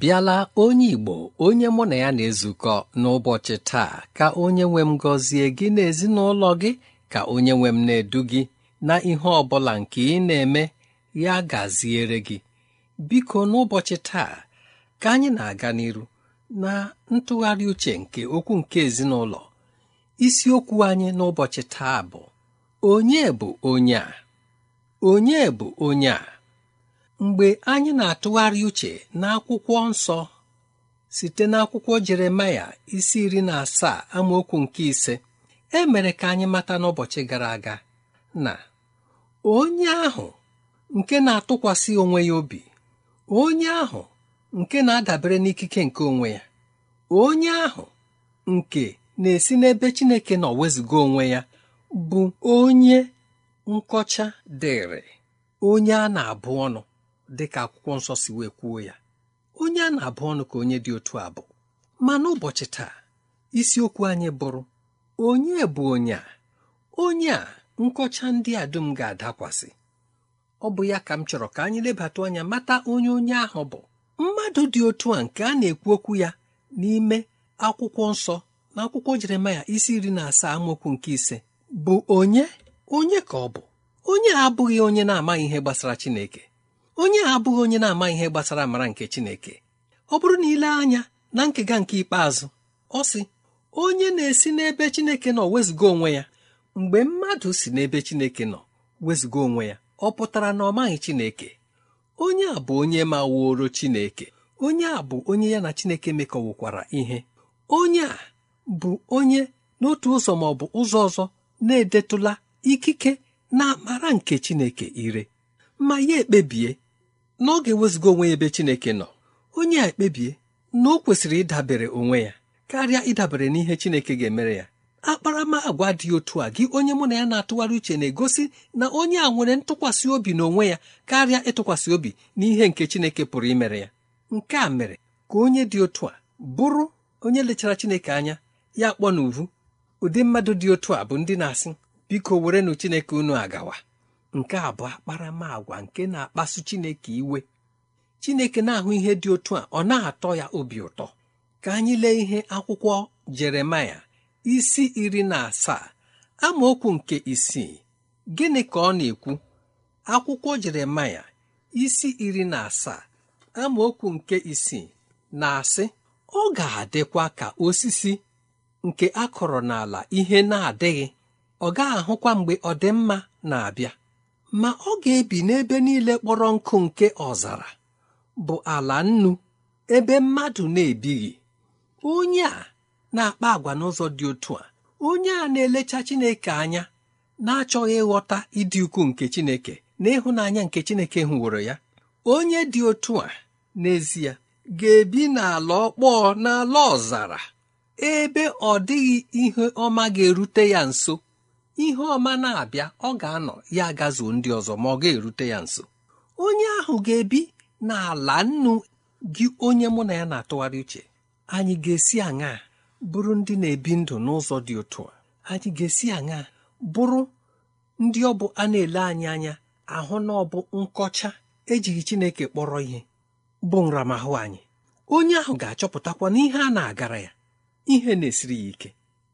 bịala onye Igbo onye mụ na ya na-ezukọ n'ụbọchị taa ka onye nwe m gọzie gị na ezinụlọ gị ka onye nwe m na-edu gị na ihe ọ bụla nke ị na-eme ya gaziere gị biko n'ụbọchị taa ka anyị na-aga n'iru na ntụgharị uche nke okwu nke ezinụlọ isiokwu anyị n'ụbọchị taa bụ onye onye onye bụ onye a mgbe anyị na-atụgharị uche n'akwụkwọ nsọ site n'akwụkwọ Jeremaya isi iri na asaa amaokwu nke ise e mere ka anyị mata n'ụbọchị gara aga na onye ahụ nke na-atụkwasị onwe ya obi onye ahụ nke na-adabere n'ikike nke onwe ya onye ahụ nke na-esi n'ebe Chineke nọ wezuga onwe ya bụ onye nkọcha dịrị onye a na-abụ ọnụ dị ka akwụkwọ nsọ si wee kwuo ya onye a na-abụ ọnụ ka onye dị otu bụ. ma n'ụbọchị taa isiokwu anyị bụrụ onye bụ onye a onye a nkọcha ndị a dum ga-adakwasị ọ bụ ya ka m chọrọ ka anyị lebata anya mata onye onye ahụ bụ mmadụ dị otu a nke a na-ekwu okwu ya n'ime akwụkwọ nsọ na akwụkwọ Jeremaya isi iri na asaa amaokwu nke ise bụ onye onye ka ọ bụ onye abụghị onye na-amaghị ihe gbasara Chineke onye a abụghị onye na-ama ihe gbasara amara nke Chineke ọ bụrụ na ile anya na nkega nke ikpeazụ ọ sị onye na-esi n'ebe Chineke nọ wezụga onwe ya mgbe mmadụ si n'ebe Chineke nọ wezụga onwe ya ọ pụtara na ọ maghị Chineke onye a bụ onye ma wuoro Chineke onye a bụ onye ya na Chineke mekọwukwara ihe onye a bụ onye n'otu ụzọ ma ọ bụ ụzọ ọzọ na-edetụla ikike na amara nke Chineke ire ma ya ekpebie n'oge wezụga onwe ya ebe Chineke nọ onye a ekpebie na o kwesịrị ịdabere onwe ya karịa ịdabere n'ihe Chineke ga-emere ya akparamagwa dị otu a gị onye mụ na ya na-atụgharị uche na-egosi na onye a nwere ntụkwasị obi n'onwe ya karịa ịtụkwasị obi n'ihe nke Chineke pụrụ imere ya nke a mere ka onye dị otu a bụrụ onye lechara Chineke anya ya kpọ n'uvu ụdị mmadụ dị otu a bụ ndị na-asị biko werenu Chineke unu agawa nke a bụ akparamagwa nke na-akpasu Chineke iwe Chineke na-ahụ ihe dị otu a ọ na-atọ ya obi ụtọ ka anyị lee ihe akwụkwọ Jeremaya isi iri na asaa amaokwu nke isii gịnị ka ọ na-ekwu akwụkwọ Jeremaya isi iri na asaa amaokwu nke isii na-asị ọ ga-adịkwa ka osisi nke akọrọ n'ala ihe na-adịghị ọ gaghị ahụkwa mgbe ọdịmma na-abịa ma ọ ga-ebi n'ebe niile kpọrọ nkụ nke ọzara bụ ala nnu ebe mmadụ na-ebighị onye a na-akpa agwa n'ụzọ dị otu a onye a na-elecha Chineke anya na-achọghị ịghọta ịdị ukwuu nke Chineke na ịhụnanya nke Chineke hụworo ya onye dị otu a n'ezie ga-ebi n'ala ọkpọọ n'ala ọzara ebe ọ dịghị ihe ọma ga-erute ya nso ihe ọma na-abịa ọ ga-anọ ya agazuo ndị ọzọ ma ọ ga-erute ya nso onye ahụ ga-ebi n'ala nnu gị onye mụ na ya na-atụgharị uche anyị ga-esi aṅa bụrụ ndị na-ebi ndụ n'ụzọ dị otu a anyị ga-esi aṅa bụrụ ndị ọ bụ a na-ele anyị anya ahụ na ọ bụ nkọcha ejighị Chineke kpọrọ ihe bụ nramahụ anyị onye ahụ ga-achọpụtakwa na ihe a na-agara ya ihe na-esiri ya ike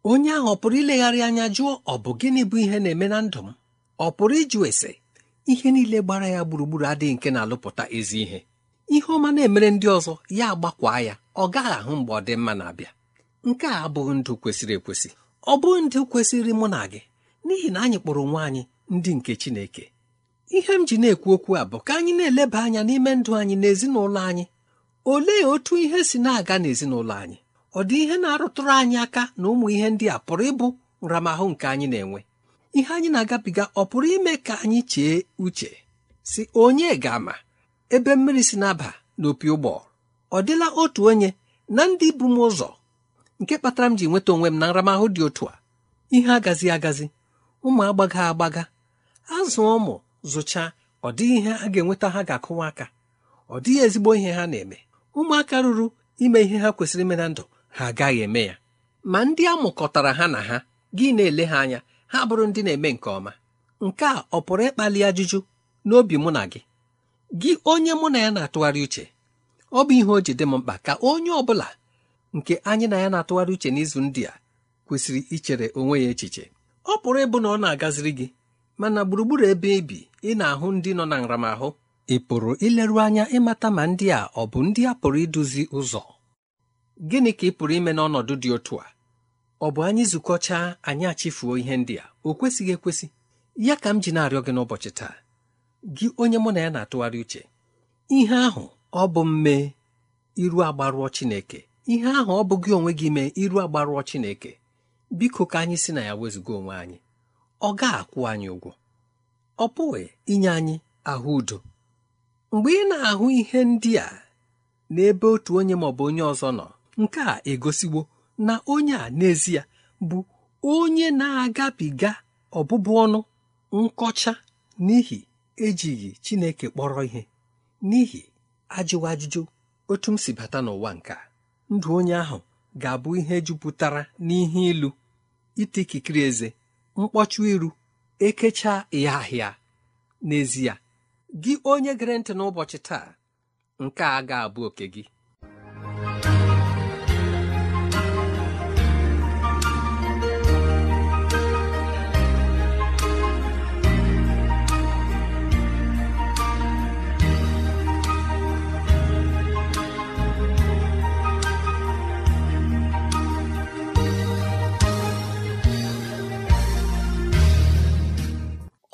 onye ahụ ọ pụrụ ilegharị anya jụọ ọ bụ gịnị bụ ihe na-eme na ndụ m ọ pụrụ ịjụ ese ihe niile gbara ya gburugburu adịghị nke na-alụpụta ezi ihe ihe ọma na-emere ndị ọzọ ya agbakwa ya ọ gaghị ahụ mgbe ọ dị mma na-abịa nke a abụghị ndụ kwesịrị ekwesị ọ bụghị ndụ kwesịrị mụ na gị n'ihi na anyị kpọrọ nwa anyị ndị nke Chineke ihe m ji na-ekwu okwu a bụ ka anyị na-eleba anya n'ime ndụ anyị na ezinụlọ anyị olee otu ihe si na-aga n'ezinụlọ anyị ọ dị ihe na-arụtụrụ anyị aka na ụmụ ihe ndị a pụrụ ịbụ nramahụ nke anyị na-enwe ihe anyị na-agabiga ọ pụrụ ime ka anyị chee uche si onye ga-ama ebe mmiri si na-aba n'opi ụgbọ ọ dịla otu onye na ndị bụ m ụzọ nke kpatara m ji nweta onwe m na nramahụ dị otu a ihe agazi agazi ụmụ agbaga agbaga azụ ụmụ zụchaa ọ dịghị ihe a ga-enweta ha ga-akụwa aka ọ dịghị ezigbo ihe ha na-eme ụmụaka ruru ime ihe ha kwesịrị ime na ndụ ha agaghị eme ya ma ndị a mụkọtara ha na ha gị na-ele ha anya ha bụrụ ndị na-eme nke ọma nke a ọ pụrụ ịkpali ajụjụ n'obi mụ na gị gị onye mụ na ya na-atụgharị uche ọ bụ ihe o ji dị m mkpa ka onye ọ bụla nke anyị na ya na-atụgharị uche n'izu ndị a kwesịrị ichere onwe ya echiche ọ pụrụ ịbụ na ọ na-agaziri gị mana gburugburu ebe ibi e ị na-ahụ ndị nọ na nramahụ ị pụrụ ileru anya ịmata ma ndị a ọ bụ ndị a pụrụ iduzi ụzọ gịnị ka ị pụrụ ime n'ọnọdụ dị otu a ọ bụ anyị zukọchaa anyị achifuo ihe ndị a o kwesịghị ekwesị ya ka m ji na-arịọ gị n'ụbọchị taa gị onye mụ na ya na-atụgharị uche ihe ahụ ọ bụ mme iru agbarụọ Chineke ihe ahụ ọ bụ gị onwe gị mee iru agbarụọ Chineke biko ka anyị si na ya wezụga onwe anyị ọ ga-akwụ anyị ụgwọ ọ pụghị inye anyị ahụ udo mgbe ị na-ahụ ihe ndị a n'ebe otu onye maọbụ onye ọzọ nọ nke a egosiwo na onye a n'ezie bụ onye na-agabiga ọbụbụ ọnụ nkọcha n'ihi ejighị Chineke kpọrọ ihe n'ihi ajụwa ajụjụ otu m si bata n'ụwa nke a ndụ onye ahụ ga-abụ ihe jupụtara n'ihe ilu ite eze mkpọchụ iru ekechaa ya ahịa n'ezie gị onye gere ntị n'ụbọchị taa nke a ga-abụ oke gị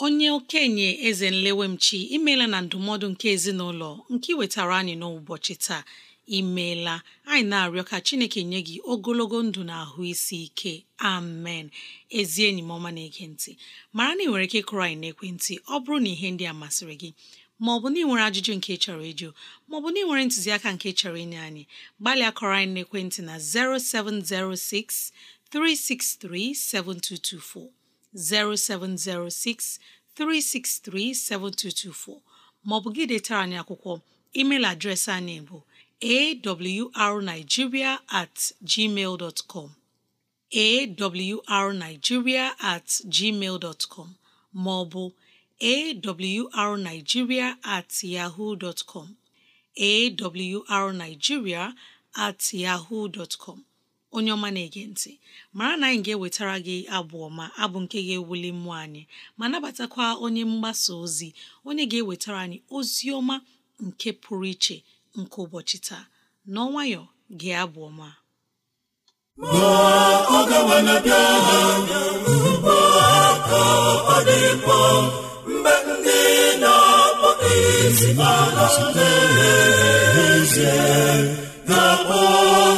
onye okenye eze nlewemchi imeela na ndụmọdụ nke ezinụlọ nke wetara anyị n'ụbọchị taa imeela anyị na-arịọ ka chineke nye gị ogologo ndụ na ahụ isi ike amen ezi enyi m ọma na-ege mara na ị nwere ike ịkụrụ anyị n'ekwentị ọ bụrụ na ihe ndị a masịrị gị ma ọ bụ na ị nwere ajụjụ nke chọrọ ịjụ ma ọ bụ na ị nwere ntụziaka nke chọrọ inye anyị gbalịa kọrọ anyị n'ekwentị na 0706 363 7224 0706 3637224 maọbụ gị detara anyị akwụkwọ emeil adreesị anyị bụ awrnigeria at com awrnigeria at gmail dot com maọbụ awrnigeria at yahoo dot com awrnigeria at yahoo dot com onye ọma na-ege ntị mara na anyị ga-ewetara gị abụ ọma abụ nke ga-ewuli mmụọ anyị ma nabatakwa onye mgbasa ozi onye ga-ewetara anyị ozi ọma nke pụrụ iche nke ụbọchị taa n'ọnwayọ gị abụ ọma mgbe ndị na ala ga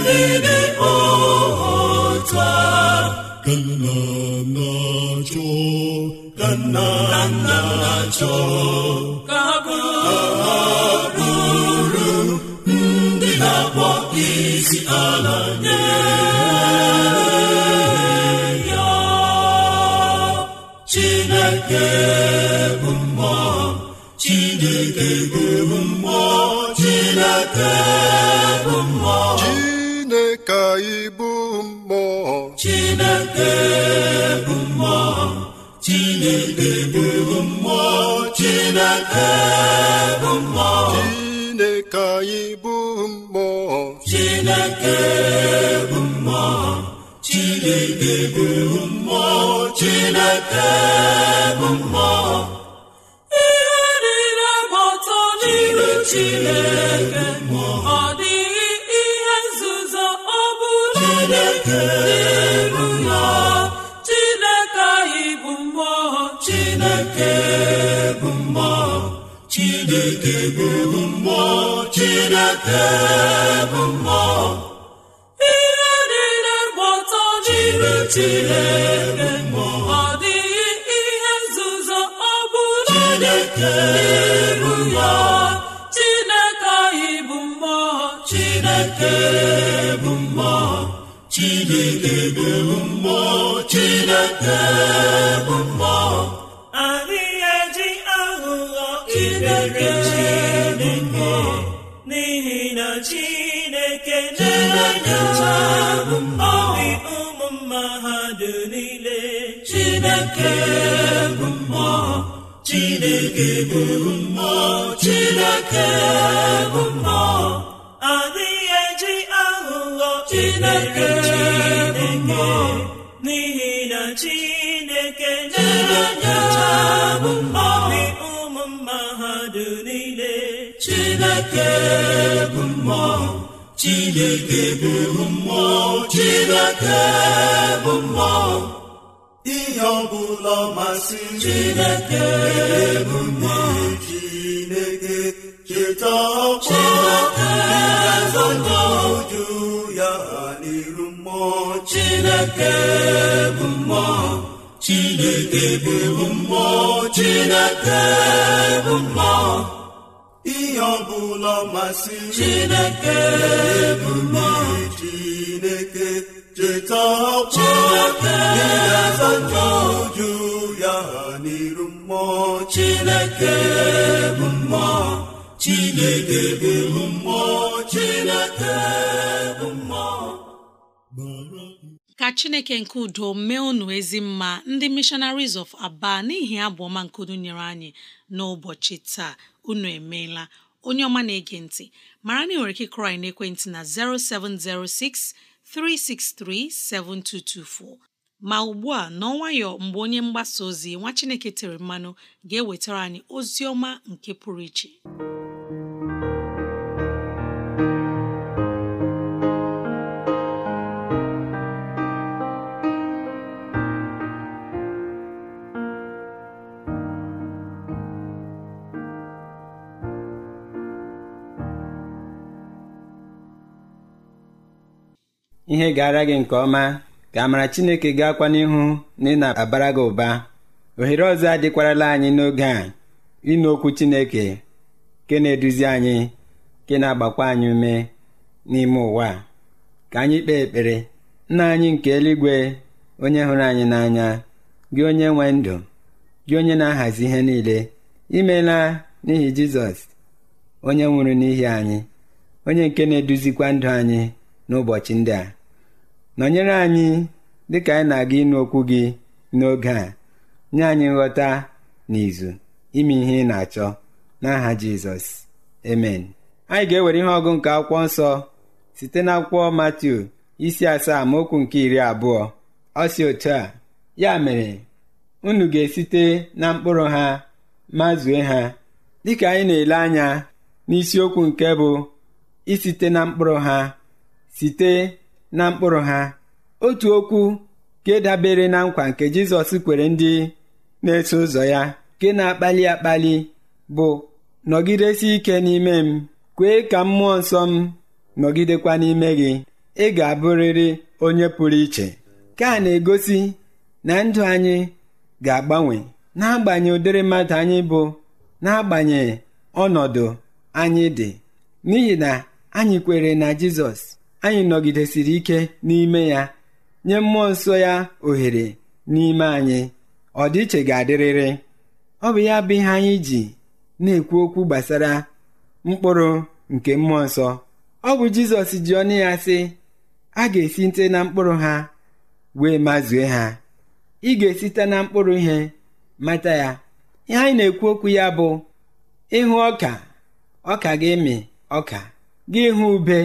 ndị dị ụta ka nna na-achọ ka na-achọ ndị na ala Chineke bụ mmụọ Chineke bụ mmụọ chineke bụ mmụọ chineke bụ mmụọ chineke bụ mmụọ chineke anyị bụ mmụọ chineke bụ mmụọ chineke bụ mmụọ chineke bụ mmụọ ihe niile gbọtọ n'iru chineke bụ mmụọ chineke bụ mmụọ chineke bụ mmụọ ihe niile gbọtọ chineke bụ mmụọ ọ dịghị ihe nzuzo ọ bụla chineke bụ mmụọ chineke anyị bụ mmụọ chineke bụ mmụọ chineke bụ mmụọ chineke chineke bụ mmụọ chineke bụ mmụọ adịghị eji aghụghọ chineke bụ mmụọ n'ihi na chineke na bụ mmụọ ụmụ mmadụ niile chineke bụ mmụọ chineke bụ mmụọ chineke bụ mmụọ ihe ọbụla masị chineke bụ mmụọ chineke cheta ọkwa uju ya n'iru mmụọ chineke bụ mmụọ chineke bụ mmụọ chineke bụ mmụọ ihe ọbụla masịrị Chineke bụ mmụọ Chineke cheta ọkpọ ịgaza njọju ya n'iru mmụọ Chineke bụ mmụọ Chineke bụ mmụọ Chineke bụ mmụọ ka Chineke nke udo mee unu ezi mma ndị Missionaries of Aba n'ihi abụ ọma nkudu nyere anyị n'ụbọchị taa unu emeela onye ọma na-ege ntị mara na ị nwere ike kụrị na na 0706 363 7224 ma ugbu a n'ọnwayọ mgbe onye mgbasa ozi nwa Chineke tere mmanụ ga-ewetara anyị ozi ọma nke pụrụ iche ihe gara gị nke ọma ka amara chineke gaakwa n'ihu na ị na-abara gị ụba ohere ọzọ adịkwarala anyị n'oge a ịnụ okwu chineke nke na-eduzi anyị nke na-agbakwa anyị ume n'ime ụwa ka anyị kpee ekpere nna anyị nke eluigwe onye hụrụ anyị n'anya gị onye nwe ndụ gị onye na-ahazi ihe niile imela n'ihi jizọs onye nwụrụ n'ihi anyị onye nke na-eduzikwa ndụ anyị n'ụbọchị ndị a nọnyere anyị dịka anyị na-aga ịnụ okwu gị n'oge a nye anyị nghọta na izu ime ihe ị na-achọ n'aha jizọs emen anyị ga-ewere ihe ọgụ nke akwụkwọ nsọ site na akwụkwọ matiu isi asaa ma okwu nke iri abụọ ọ si otu a ya mere unu ga-esite na mkpụrụ ha ma zue ha dịka anyị na-ele anya n'isiokwu nke bụ isite na mkpụrụ ha site na mkpụrụ ha otu okwu nke dabere na nkwa nke jizọs kwere ndị na-eso ụzọ ya nke na-akpali akpali bụ nọgidesi ike n'ime m kwee ka mmụọ nsọ m nọgidekwa n'ime gị ị ga-abụrịrị onye pụrụ iche ka a na-egosi na ndụ anyị ga-agbanwe n'agbanyeghị ụdịrị mmadụ anyị bụ n'agbanyeghị ọnọdụ anyị dị n'ihi na anyị kwere na jizọs anyị nọgidesiri ike n'ime ya nye mmụọ nsọ ya ohere n'ime anyị ọdịiche ga-adịrịrị ọ bụ ya bụ ihe anyị ji na-ekwu okwu gbasara mkpụrụ nke mmụọ nsọ ọ bụ jizọs ji ọnụ ya sị a ga-esi nte na mkpụrụ ha wee mazue ha ị ga-esite na mkpụrụ ihe mata ya ihe anyị na-ekwu okwu ya bụ ịhụ ọka ọka gị mị ọka gị hụ ube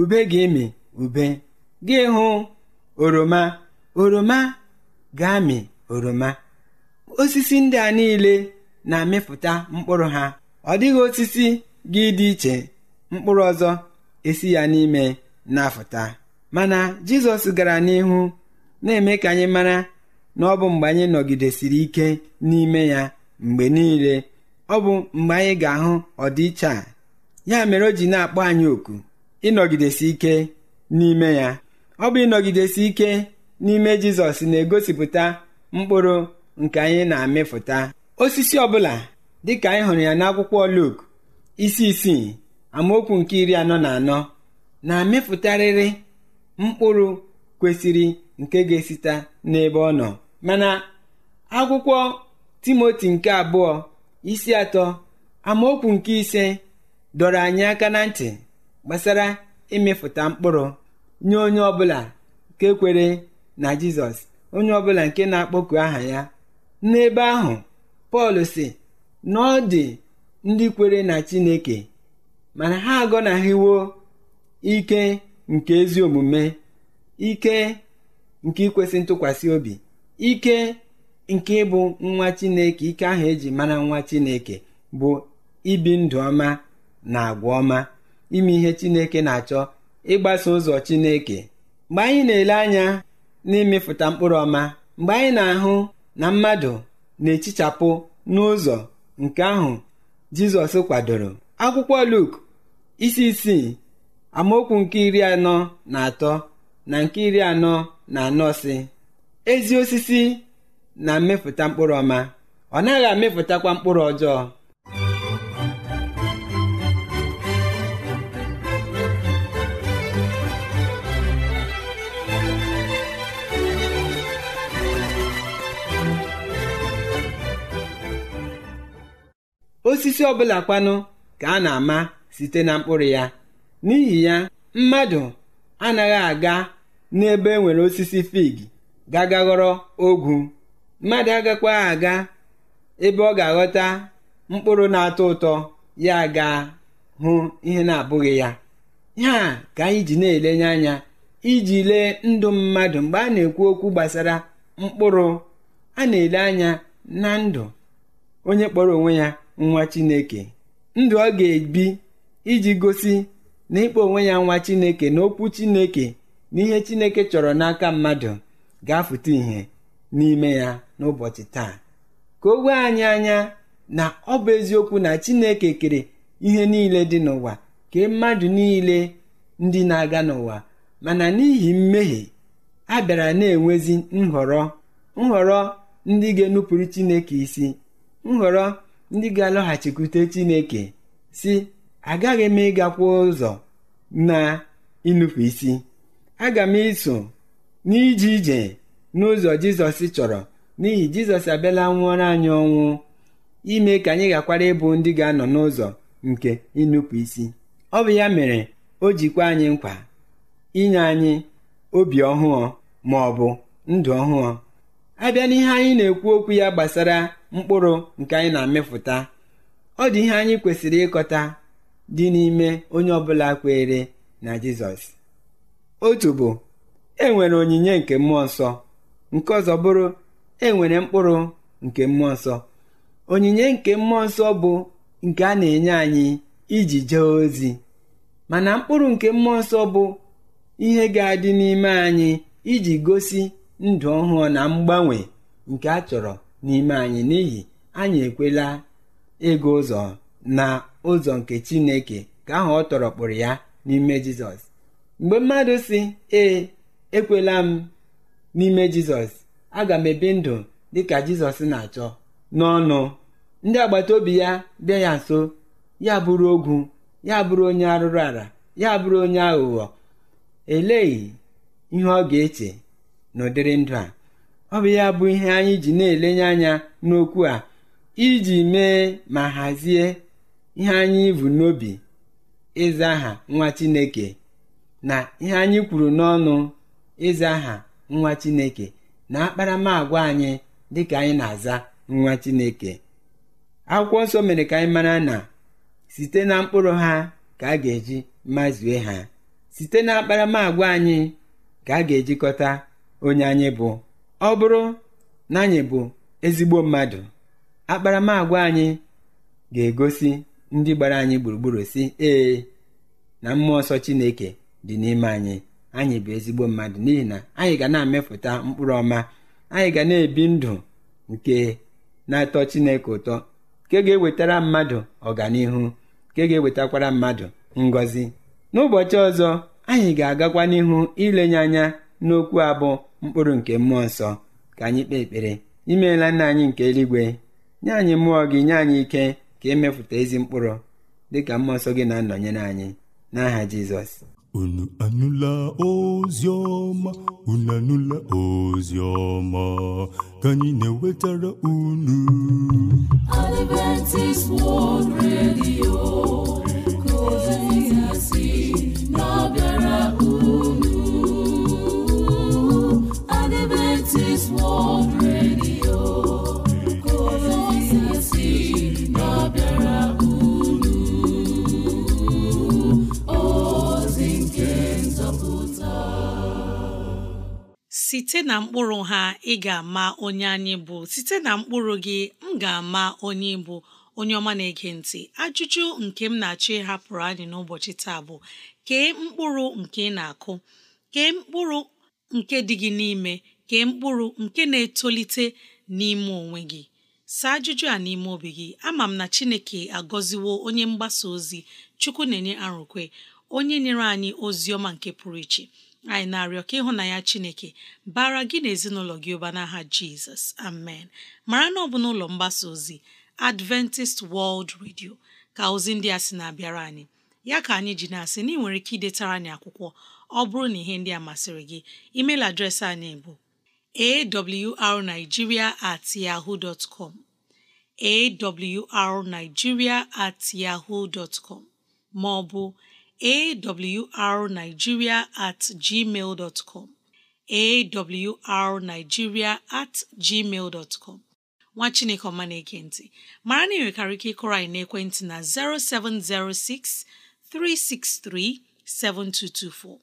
ube ga-emi ube gị hụ oroma oroma ga-amị oroma osisi ndị a niile na-amịpụta mkpụrụ ha ọ dịghị osisi gị dị iche mkpụrụ ọzọ esi ya n'ime na-afụta mana jizọs gara n'ihu na-eme ka anyị mara na ọ bụ mgbe anyị nọgidesiri ike n'ime ya mgbe niile ọ bụ mgbe anyị ga-ahụ ọdịiche a ya mere o ji na-akpọ anyị oku ịnọgidesi ike n'ime ya ọ bụ ịnọgidesi ike n'ime jizọs na-egosipụta mkpụrụ nke anyị na-amịfụta osisi ọbụla dịka anyị hụrụ ya n'akwụkwọ Luk isi isii amaokwu nke iri anọ na anọ na-amịfụtarịrị mkpụrụ kwesịrị nke ga-esite n'ebe ọ nọ mana akwụkwọ timoti nke abụọ isi atọ amaokwu nke ise dọrọ anyị aka na ntị gbasara imefụta mkpụrụ nye onye ọbụla nke kwere na jizọs onye ọbụla nke na-akpọku aha ya n'ebe ahụ pọl si na ọ dị ndị kwere na chineke mana ha agọnaghịwo ike nke ezi omume ike nke ikwesị ntụkwasị obi ike nke ịbụ nwa chineke ike ahụ eji mara nwa chineke bụ ibi ndụ ọma na agwa ọma ime ihe Chineke na-achọ ịgbaso ụzọ Chineke mgbe anyị na-ele anya na imefuta mkpụrụ ọma mgbe anyị na-ahụ na mmadụ na-echichapụ n'ụzọ nke ahụ Jizọs kwadoro akwụkwọ Luk isi isii amaokwu nke iri anọ na atọ na nke iri anọ na anọ si ezi osisi na mmefụta mkpụrụ ọma ọ naghị amịfụtakwa mkpụrụ ọjọọ osisi ọbụla kwanụ ka a na-ama site na mkpụrụ ya n'ihi ya mmadụ anaghị aga n'ebe e nwere osisi fig gagaghọrọ ogwu mmadụ agakwaghị aga ebe ọ ga-aghọta mkpụrụ na-atọ ụtọ ya ga hụ ihe na-abụghị ya ya ka anyị ji na-elenye anya iji lee ndụ mmadụ mgbe a na-ekwu okwu gbasara mkpụrụ a na-ele anya na ndụ onye kpọrọ onwe ya nwa Chineke ndụ ọ ga-ebi iji gosi na ịkpọ onwe ya nwa Chineke na okwu Chineke na ihe Chineke chọrọ n'aka mmadụ ga-afụta ihe n'ime ya n'ụbọchị taa ka o wee anyị anya na ọ bụ eziokwu na Chineke kere ihe niile dị n'ụwa ka mmadụ niile ndị na-aga n'ụwa mana n'ihi mmehie a bịara na-enwezi nhọrọ nhọrọ ndị ga-enupụrụ Chineke isi nhọrọ ndị ga-alọghachikwute Chineke si agaghị m ịgakwa ụzọ na ịnụpụ isi aga m iso n'ije ije n'ụzọ Jizọs chọrọ n'ihi Jizọs abịala nwụọrọ anyị ọnwụ ime ka anyị gakwara ịbụ ndị ga-anọ n'ụzọ nke ịnụpụ isi ọ bụ ya mere o jikwa anyị nkwa inye anyị obi ọhụụ ma ọ bụ ndụ ọhụụ abịa n'ihe anyị na-ekwu okwu ya gbasara mkpụrụ nke anyị na amịfụta ọ dị ihe anyị kwesịrị ịkọta dị n'ime onye ọbụla kweere na jizọs otu bụ e nwere onyinye nke mmụọ nsọ nke ọzọ bụrụ e nwere mkpụrụ nke mmụọ nsọ onyinye nke mmụọ nsọ bụ nke a na-enye anyị iji jee ozi mana mkpụrụ nke mmụọ nsọ bụ ihe ga-adị n'ime anyị iji gosi ndụ ọhụụ na mgbanwe nke a chọrọ n'ime anyị n'ihi anyị ekwela ego ụzọ na ụzọ nke Chineke ka ahụ ọ tọrọ kpụrụ ya n'ime Jizọs mgbe mmadụ si ee ekwela m n'ime Jizọs aga m ebi ndụ ka Jizọs na-achọ n'ọnụ ndị agbata obi ya bịa ya nso ya bụrụ ogwu ya bụrụ onye arụrụ ala ya bụrụ onye aghụghọ eleghị ihe ọ ga-eche n'ụdịrị ndụ a ọ bụ ya bụ ihe anyị ji na-elenye anya n'okwu a iji mee ma hazie ihe anyị bụ n'obi ịza aha nwa Chineke na ihe anyị kwuru n'ọnụ ịza aha nwa Chineke na akparamagwa anyị ka anyị na-aza nwa Chineke akwụkwọ nsọ mere ka anyị mara na site na mkpụrụ ha ka a ga-eji mazue ha site na akparamagwa anyị ka a ga-ejikọta onye anyị bụ ọ bụrụ na anyị bụ ezigbo mmadụ akparamagwa anyị ga-egosi ndị gbara anyị gburugburu si ee na mmụọ nsọ chineke dị n'ime anyị anyị bụ ezigbo mmadụ n'ihi na anyị ga na-amepụta mkpụrụ ọma anyị ga na-ebi ndụ nke na-atọ chineke ụtọ nke ga-ewetara mmadụ ọganihu nke ga-ewetakwara mmadụ ngọzi n'ụbọchị ọzọ anyị ga-agakwa n'ihu ilenye anya n'okwu abụọ mkpụrụ nke mmụọ nsọ ka anyị kpee ekpere imeela nna anyị nke eluigwe nye anyị mmụọ gị nye anyị ike ka emepụta ezi mkpụrụ dị ka mmụọ nsọ gị na-anọnyere anyị n'aha jizọs unu anụla ozi ọma unu anụla ozi ọma ka anyị na-ewetara unu Adventist World Radio site na mkpụrụ ha ị ga-ama onye anyị bụ site na mkpụrụ gị m ga-ama onye bụ onye ọma na-ege ntị ajụjụ nke m na-achọ ịhapụrụ anyị n'ụbọchị taa bụ kee mkpụrụ nke ị na-akụ kee mkpụrụ nke dị gị n'ime kee mkpụrụ nke na-etolite n'ime onwe gị saa ajụjụ a n'ime obi gị ama m na Chineke agọziwo onye mgbasa ozi Chukwu na-enye arụkwe onye nyere anyị ozi ọma nke pụrụ iche anyị na-arịọ ka ya Chineke bara gị na ezinụlọ gị ụba n'aha Jizọs amen mara na ọ bụ n'ụlọ mgbasa ozi Adventist World Radio ka ozi ndị a sị na-abịara anyị ya ka anyị ji na-asị na ị nwere ike idetara anyị akwụkwọ ọ bụrụ na ihe ndị a masịrị gị email adreesị anyị bụ awrnigeria at yahoo dot com awrnigeria at yahoo dot com ma ọ bụ awrnigeria at gmail dot com awrnigeria at gmail dot com nwa Chineke ọma na-eke ntị mara na ị ike ịkọrọ anyị na 0706 363 7224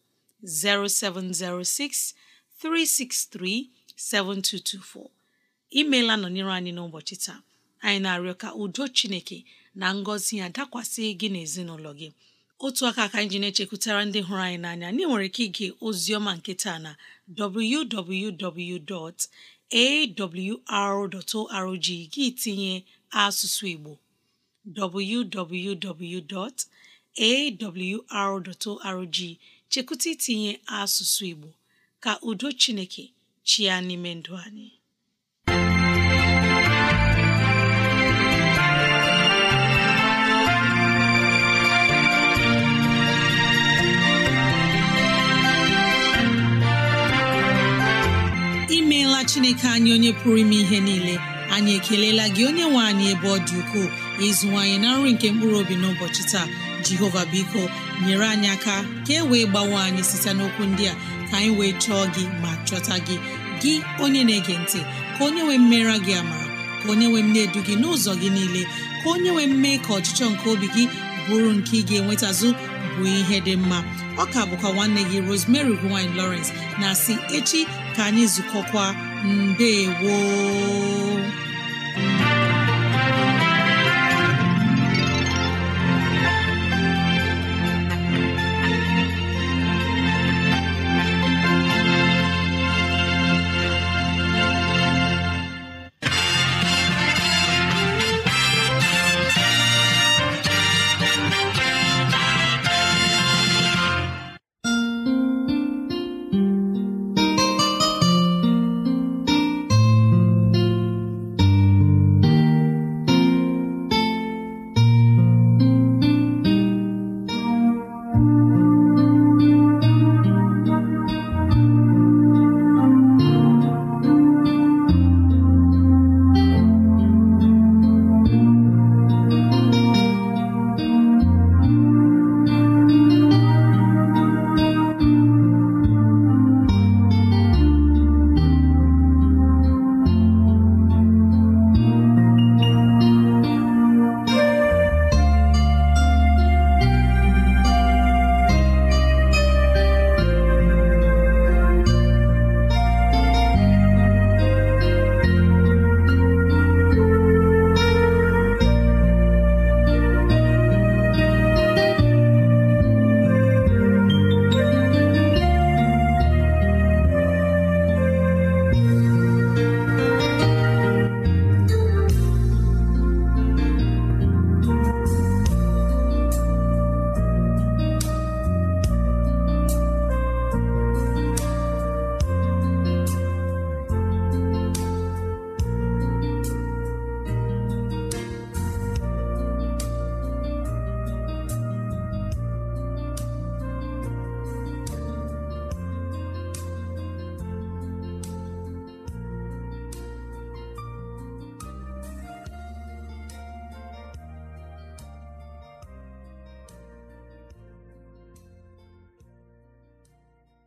0706 363 7224 imeela nọnyere anyị n'ụbọchị taa anyị na-arịọ ka udo Chineke na ngọzi ya dakwasị gị na ezinụlọ gị otu aka ka anyị na-echekwutara ndị hụrụ anyị n'anya anyị nwere ike ige ozioma ọma nke taa na www.awr.org gị tinye asụsụ Igbo www.awr.org chekwụta itinye asụsụ Igbo ka udo Chineke chi ya n'ime ndụ anyị imeela chineke anyị onye pụrụ ime ihe niile anyị ekeleela gị onye nwe anyị ebe ọ dị ukwuu ukoo ịzụwanyị na nri nke mkpụrụ obi n'ụbọchị taa jehova biko nyere anyị aka ka e wee gbawe anyị site n'okwu ndị a ka anyị wee chọọ gị ma chọta gị gị onye na-ege ntị ka onye nwee mmera gị ama ka onye nwee mne edu gị n'ụzọ gị niile ka onye nwee mme ka ọchịchọ nke obi gị bụrụ nke ị ga-enwetazụ bụ ihe dị mma ọ ka bụkwa nwanne gị Rosemary gine Lawrence na si echi ka anyị zukọkwa mbe woo